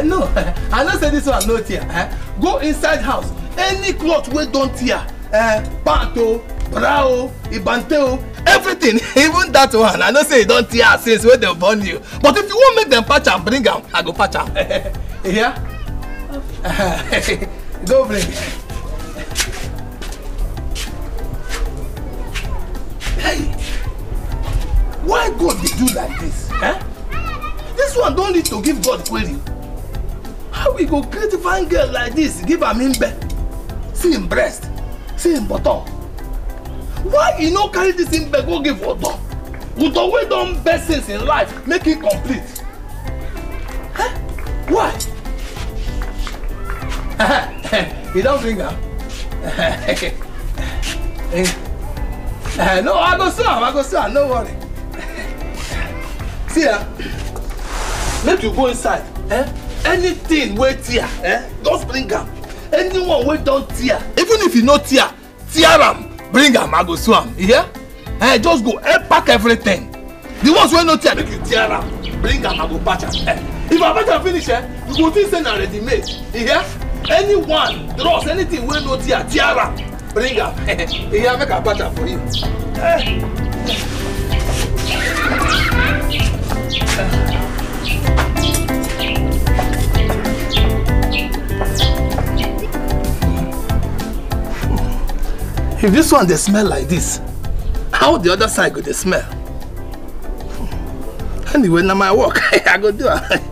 no i know say this one no tear eh? go inside house any cloth where don't tear eh, Panto, brao, ibanteo, everything even that one i know say e don tear since where they burn you but if you wan make them patch and bring am i go patch am Yeah? Dobry. Hey, why God did do like this? Huh? Eh? This one don't need to give God query. How we go create fine girl like this give her im bed? See im breast, see im bottom. Why he no carry this im bed go give Udo? Udo way done best things in life make it e complete. Huh? Eh? Why? you don't drink am? Huh? Eh, no, I go serve, I go serve, no worry. See, uh, make you go inside. Eh? Anything wait here. eh? Don't bring am. Anyone wait down tear, even if you no tear, tear am, bring am, I go sew You hear? Eh, just go, eh, pack everything. The ones wey no tear, make you tear am, bring am, I go patch am. Eh? If I patch am finish, eh, you go think say na ready made. You hear? anyone draws anything wey no tear tear am bring am eya make i patch am for you. Eh. If this one dey smell like this, how the other side go dey smell? Anyway, na my work. I go do am.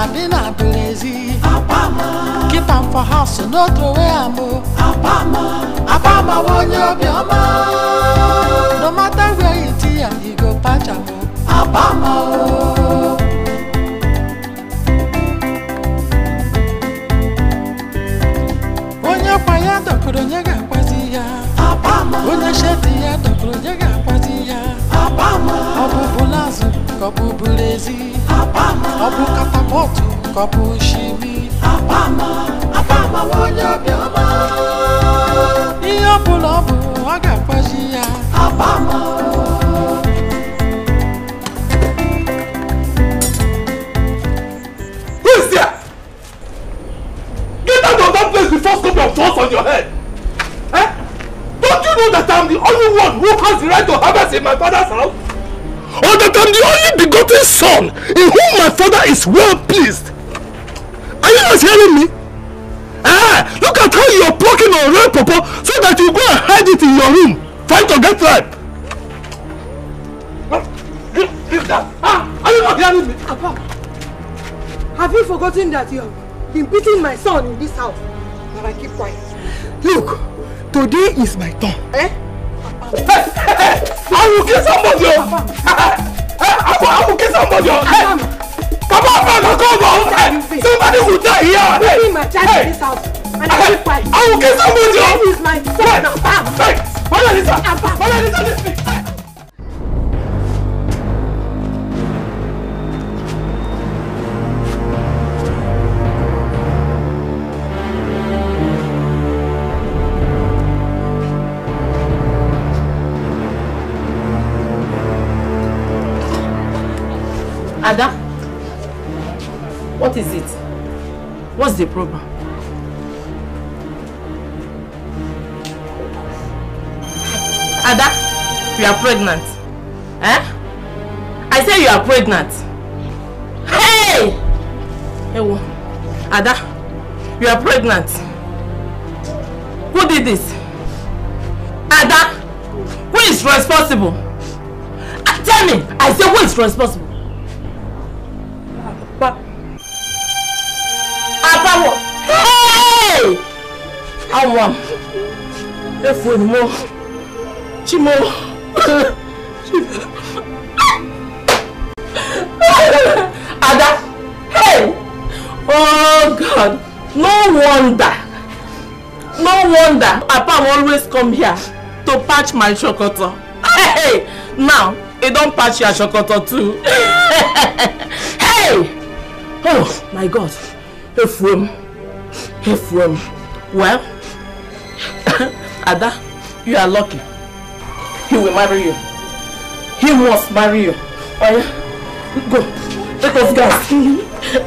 Madina Berezi. Apama. Keep on for house, no throw away am o. Apama. Apama won yo bi No matter where you see am, you go patch am o. Apama o. Onye kwa ya dọkpụrụ onye ga-akwazi ya. Apama. Onye shedi ya dọkpụrụ onye ga-akwazi ya. Apama. Obu bụ bụlazụ ka Apama. Ọ kata mọ́tò kọ́pù ṣí mi. àbámọ̀ àbámọ̀ wọlé ọbẹ̀ ọmọ. iye búlọ́ọ̀bù ọ̀gá pọ̀jì ya. àbámọ̀. Who is there? Get out of that place before something of thorns on your head. Eh? Don't you know that I'm the only one who has the right to harvest in my father's house? am the only begotten son in whom my father is well pleased. Are you not hearing me? Ah, look at how you are plucking on red pawpaw so that you go and hide it in your room trying to get ripe. Give that. Ah, are you not hearing me? Papa, have you forgotten that you have been beating my son in this house? But I keep quiet. Look, today is my turn. Eh? Papa. Hey, hey, hey, I will kill somebody. Papa therefore I will kill somebody on head. Come on, man, I'll call my own head. Somebody will die here. I'm leaving my child hey. in this house. And I will fight. I will kill somebody on head. That is my son. Hey. Hey. Mother Lisa. Mother Lisa, listen. Ada, what is it? What's the problem? Ada, you are pregnant. Eh? I say you are pregnant. Hey! Ewo, Ada, you are pregnant. Who did this? Ada, who is responsible? Ah, tell me, I say who is responsible? anwam efuoni mo chimo ada hey oh god no wonder no wonder papa always come here to patch my shokoto hey now e don patch your shokoto too hey oh my god efuom efuom well Ada, you are lucky. He will marry you. He must marry you. Oya, oh, go. Let us go.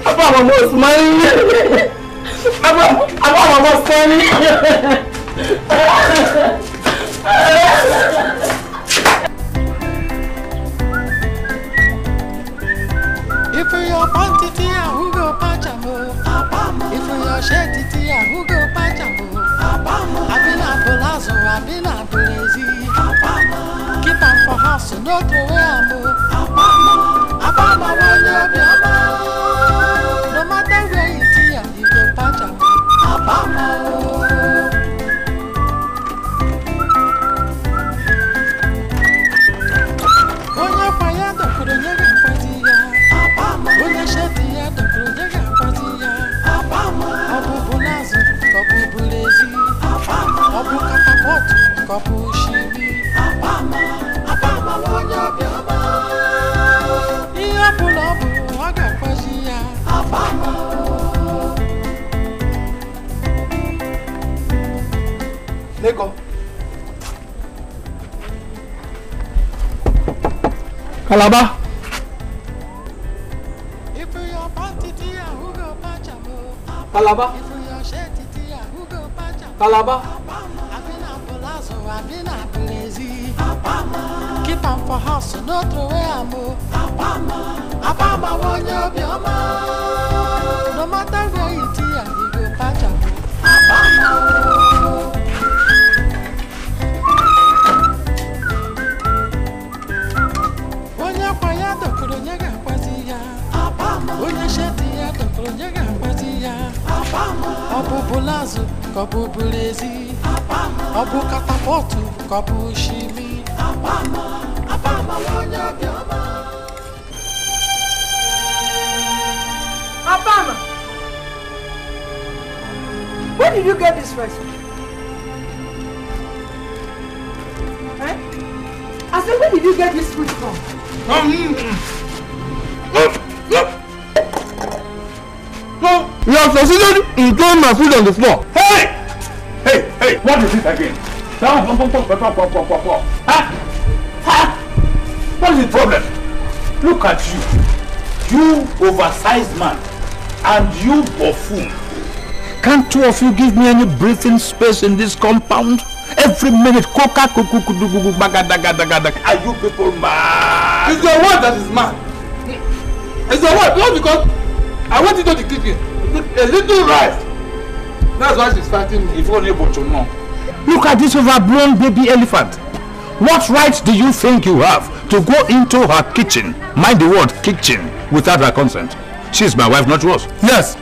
Abba must marry you. Abba, Abba must marry you. If you're panty, who go patch a If you're shady, who go patch Abama. I've been a palazzo, Abama. Keep on for house, no to where I'm. Abama. Abama, when you're kwapushimi apama apama wonyo bioma iya pulobu aga kwashiya kalaba kalaba kalaba afahasi n'otore abụ abama abama onye obiọma no matter where you ti ya you go catch am abama. onye akwa ya dọkpụrụ onye ga-akwazi ya onye sheti ya dọkpụrụ onye ga-akwazi ya ọ bụbụ lazụ ka ọ bụbụ ezi ọ bụ katapọtụ ka ọ bụ shimi Abama, where did you get this recipe? Eh? I said, where did you get this food from? No, you have succeeded in throwing my food on the floor. Hey! Hey, hey, what is it again? Ah! What's the problem? Look at you. You oversized man and you buffoon. Can't two of you give me any breathing space in this compound? Every minute, coca cuckoo Are you people mad? It's your word that is mad. It's your word, not because I went into the kitchen. A little rice. That's why she's fighting me. If only but you know. Look at this overblown baby elephant. What right do you think you have to go into her kitchen, mind the word kitchen, without her consent? She's my wife, not yours. Yes.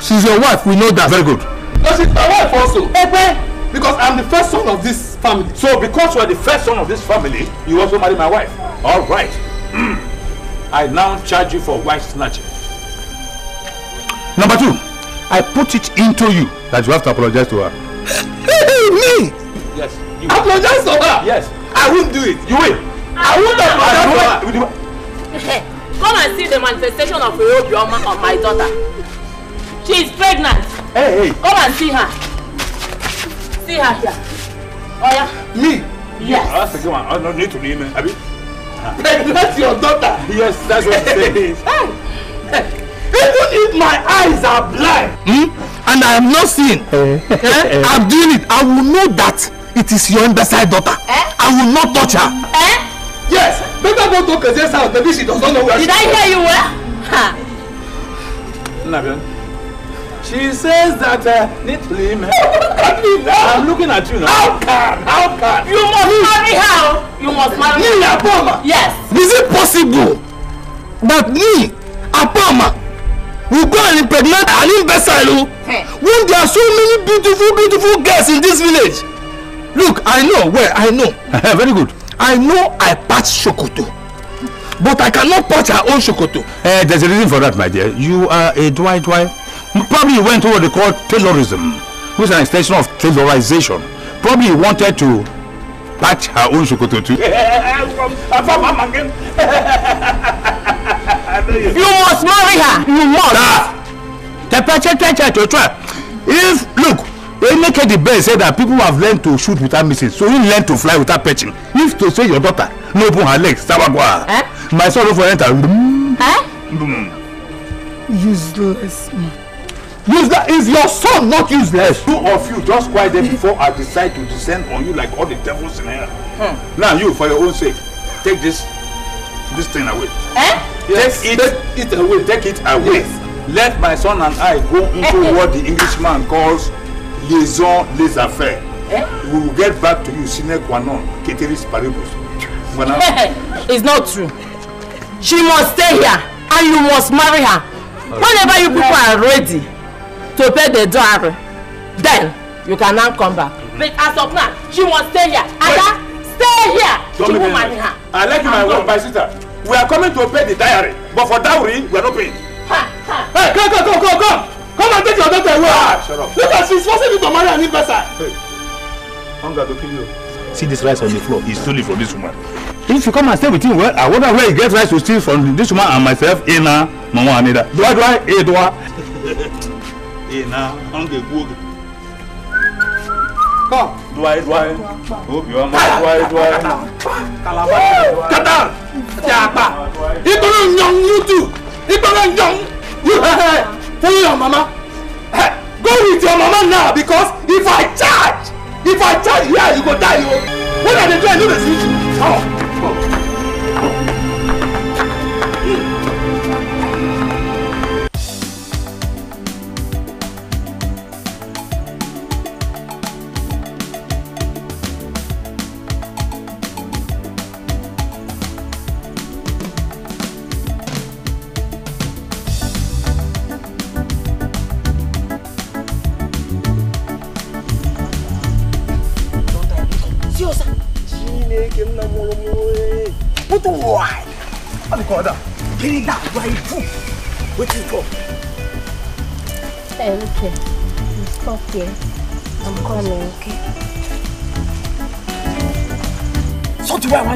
She's your wife, we know that. Very good. No, she's my wife also. Okay. Because I'm the first son of this family. So because you are the first son of this family, you also marry my wife. All right. Hmm. I now charge you for wife snatching. Number two, I put it into you that you have to apologize to her. Me? Yes. You apologize to her. Yes. I won't do it. You will. I won't apologize to her. Come and see the manifestation of your drama on my daughter. She is pregnant. Hey, hey. Come and see her. See her here. Oh yeah. Me? Yes. Oh, that's a good one. I oh, don't need to name it. Abi. Pregnant your daughter. Yes, that's what it is. Hey. Even if my eyes are blind hmm? and I am not seeing, eh? eh? I'm doing it. I will know that It is your underside daughter. Eh? I will not touch her. Eh? Yes. Better go to Kaze's house. Maybe she does not know where Did she I hear you well? Ha. Nabian. She says that uh, neatly, man. at me now. I'm looking at you now. How can? How can? You must you, marry her. You must marry me, her. Apoma. Yes. Is it possible that me, Apoma, will go and impregnate an imbecile hey. when there are so many beautiful, beautiful girls in this village? Look, I know where, I know. Very good. I know I patch Shokoto. But I cannot patch her own Shokoto. Uh, eh, there's a reason for that, my dear. You are a Dwight Dwight. Probably you went to what they call Taylorism, which is an extension of Taylorization. Probably you wanted to patch her own Shokoto too. you must marry her. You must. Ah, the If, look, Eneke the best said that people have learned to shoot without missing so he learn to fly without perching if to say your daughter no open her leg sabagwa eh? my son no for enter. Eh? Mm. useless man. useless is your son not useless. two of you just quiet there before I decide to descend on you like all the devils in hell. Hmm. now you for your own sake take this this thing away. Eh? Yes, take it take it away take it away yes. let my son and I go into eh, eh. what the Englishman calls liaison les affaires. Eh? We will get back to you sine qua non ceteris paribus. It's not true. She must stay here and you must marry her. Whenever you people are ready to pay the dowry, then you can now come back. But as of now, she must stay here. Ada, stay here. Don't she will marry her. I like my wife, my sister. We are coming to pay the diary, but for dowry, we are not paying. Ha, ha. Hey, come, come, come, come, come. Come and take your daughter away. Ah, shut up. Look at she's forcing me to marry an investor. Hey, hunger to kill you. See this rice on the floor. He stole from this woman. If you come and stay with him, well, I wonder where he gets rice to steal from this woman and myself, Ina, Mama Anida. Do I do I? Eh, do I? Ina, hunger, good. Come. Do I, do I? Hope you are my do I, do I? Calabar. Kadar. Japa. Ibrahim Young, you too. Ibrahim Young. You have follow your mama eh, go with your mama now because if i charge if i charge here yeah, you go die o oh. when i dey do i no dey see you. Oh.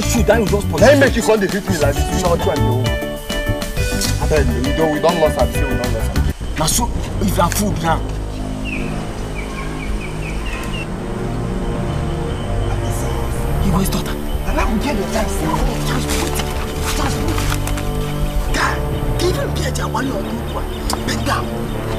that that you just put. Let me make you come dey hit me like this. You know what you and your I tell you, we don we don lost we don lost am. Na so if na food now. He was daughter. And I will get your life. Just put it. Just put it. God, give him beer, Jawali or Kukwa. Beg down.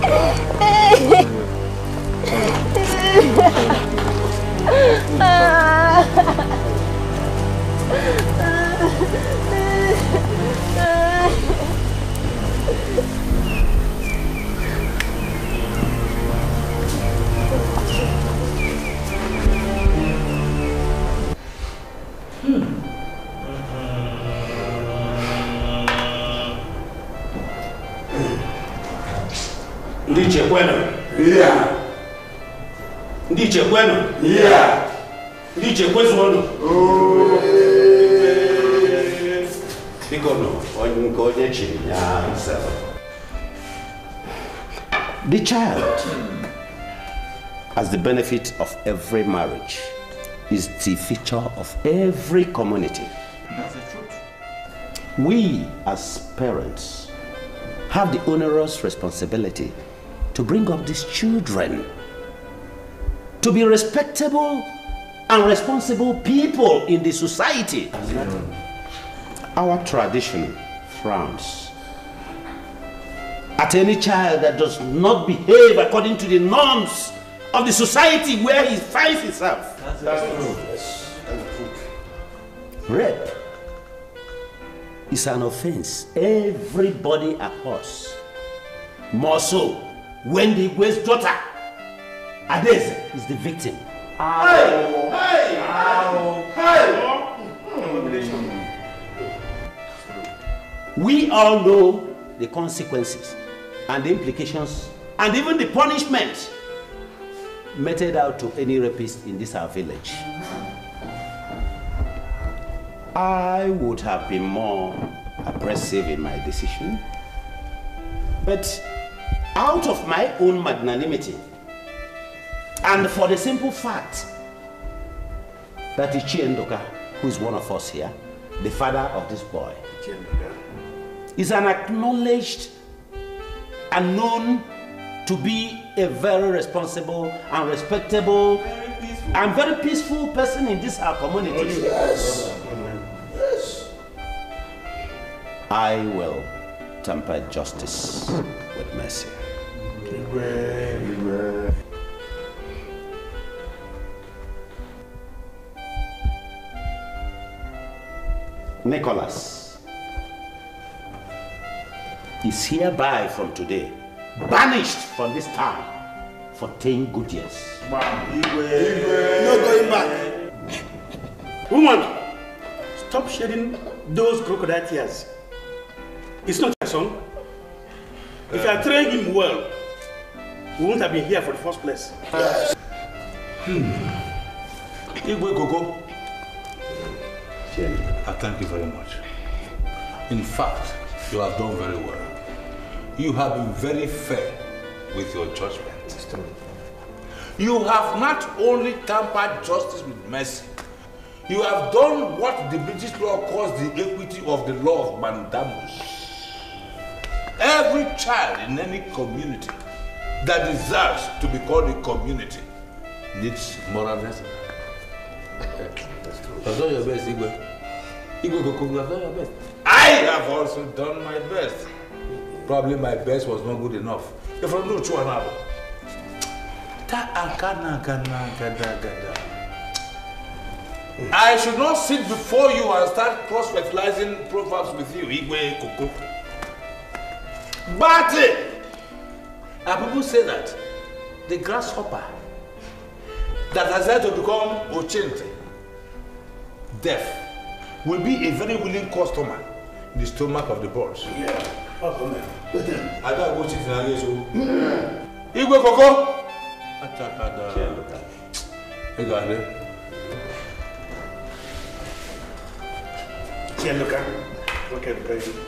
Oh. kwenụ. kwenụ. Biko nọ onye ya The child, as the benefit of every marriage, is the feature of every community. That's the truth. We, as parents, have the onerous responsibility to bring up these children to be respectable and responsible people in the society. Our tradition frowns at any child that does not behave according to the norms of the society where he finds himself. That's true. Rape is an offense. Everybody across. More so Wendy Igwe's daughter. Adeze is the victim. Hey! Hey! Hey! We all know the consequences and the implications and even the punishment meted out to any rapist in this our village. I would have been more aggressive in my decision, but out of my own magnanimity and for the simple fact that Ichi Endoka, who is one of us here, the father of this boy, is an acknowledged and known to be a very responsible and respectable very and very peaceful person in this our community. yes. yes. I will temper justice with mercy. Nicholas is hereby from today banished from this town for 10 good years. No going back. Woman, stop shedding those crocodile tears. It's not your son. If you are uh, him well, we wouldn't have been here for the first place. Yes. Hmm. Igwe I thank you very much. In fact, you have done very well. You have been very fair with your judgment. You have not only tampered justice with mercy, you have done what the British law calls the equity of the law of mandamus. Every child in any community that deserves to be called a community needs moral blessing. I've done your best, Igwe. Igwe Goku, you have done your best. I have also done my best. Probably my best was not good enough. If I know two and out. I should not sit before you and start cross-fertilizing proverbs with you, Igwe Koko. Bate! And people say that the grasshopper that has had to become Ochente, deaf, will be a very willing customer in the stomach of the boss. Yeah. come I got to go to the Igwe Koko! Atakada. Yeah, look at it. You got it. Yeah, look at it. Look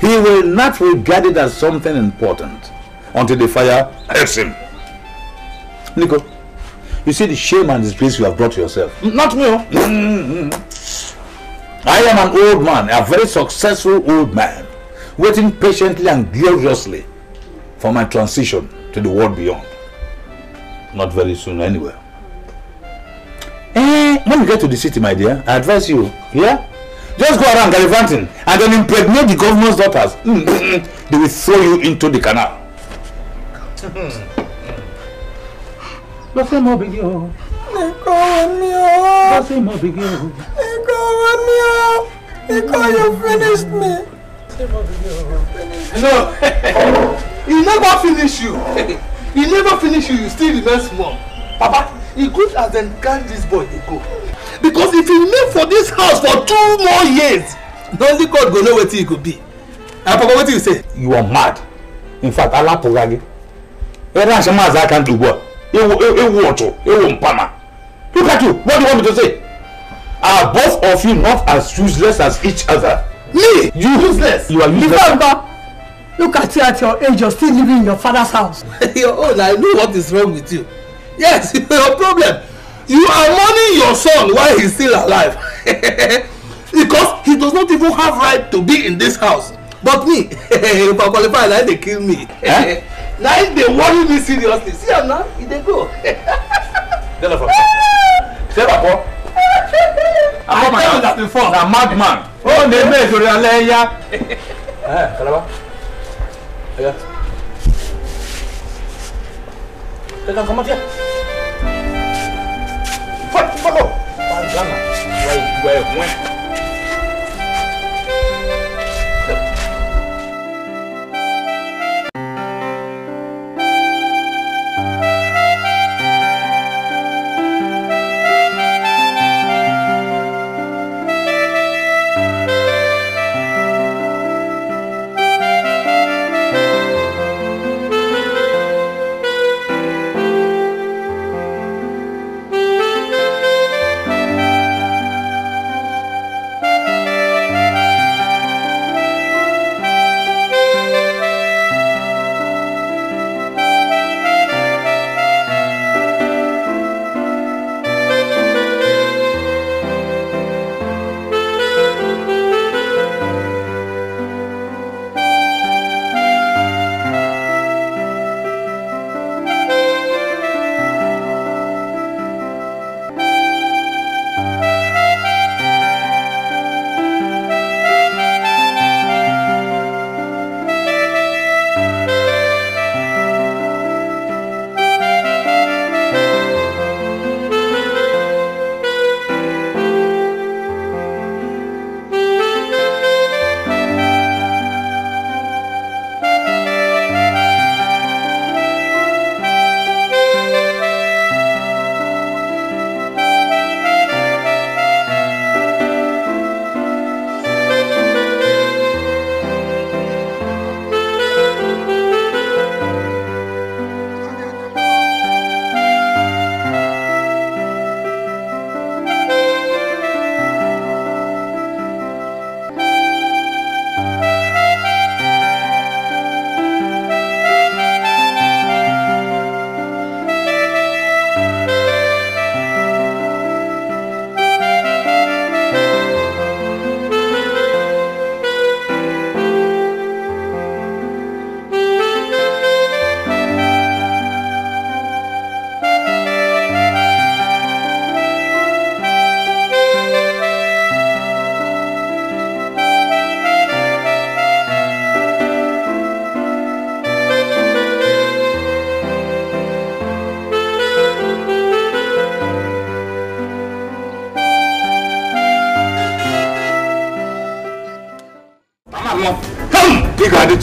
he will not regard it as something important until the fire hurts him. Nico, you see the shame and disgrace you have brought yourself. Not me. Oh. Mm, mm, mm. I am an old man, a very successful old man, waiting patiently and gloriously for my transition to the world beyond. Not very soon anyway. Eh, when you get to the city, my dear, I advise you, yeah? just go around gallivanting and then impregnate the governor's daughters mm, mm, mm. they will throw you into the canal. you finished me. no he never finish you he never finish you you still the best one, papa e good as dem carry dis boy dey go because if he live for dis house for two more years na only god go know wetin e go be and papa wetin you say. you are mad in fact alapụgha gị ebe a shamazi aka ntị ugbu a ewu e, ọchụ ewu mpama look at you what do you want me to say are both of you not as useless as each other. me you useless you are useless. ifeanyi look at you at your age you still living in your father's house. your own i know what is wrong with you yes your problem you are mourning your son while he's still alive because he does not even have right to be in this house but me if i qualify na dey kill me eh? na him dey worry me seriously see am now e dey go. jennifer say papa i tell oh, oh, you that before na madman o ne me sori alẹ ya. kalaba ẹ ká follow. Bandana. Why, why, when?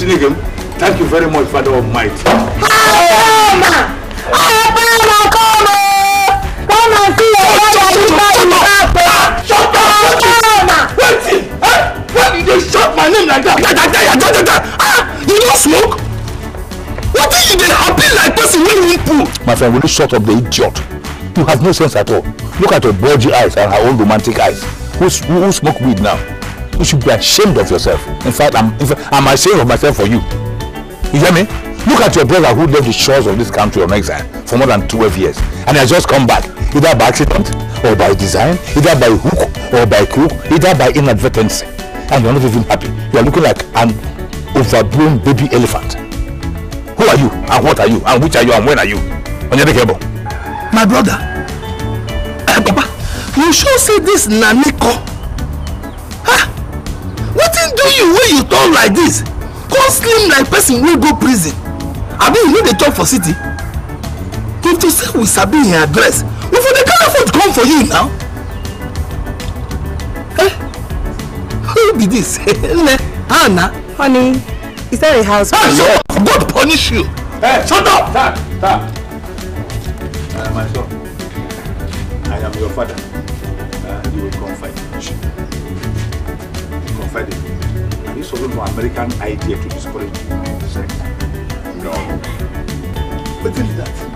Chineke thank you very much Father of Might. ọ̀pẹ̀lọ́mà kọ́ ọmọ ọmọ sí ọ̀pẹ̀lọ́mà nípa ìgbà pé ọ̀pẹ̀lọ́mà. Wetin eh why you dey shout my name like that? Yada yada yada yada ah you no smoke? Wetin you dey happy like person wey you pull? My friend, will you shut up the idiot? You have no sense at all. Look at your bulgy eyes and her own romantic eyes. who, who smoke weed now? You should be ashamed of yourself. In fact, I'm, in fact, I'm ashamed of myself for you. You hear me? Look at your brother who left the shores of this country on exile for more than 12 years and has just come back, either by accident or by design, either by hook or by crook, either by inadvertency. And you're not even happy. You're looking like an overgrown baby elephant. Who are you? And what are you? And which are you? And when are you? On your Onyedekebo. My brother. Eh, Papa, you sure say this Naniko tall like this come slim like person wey go prison abi you no dey chop for city if to say we sabi him address we for dey carry food come for you now eh who be this nne how honey is that a house. ah shut god punish you. Hey, eh, shut up. tap tap. i am your father. Anglo-American idea to discourage sex. No. But tell that.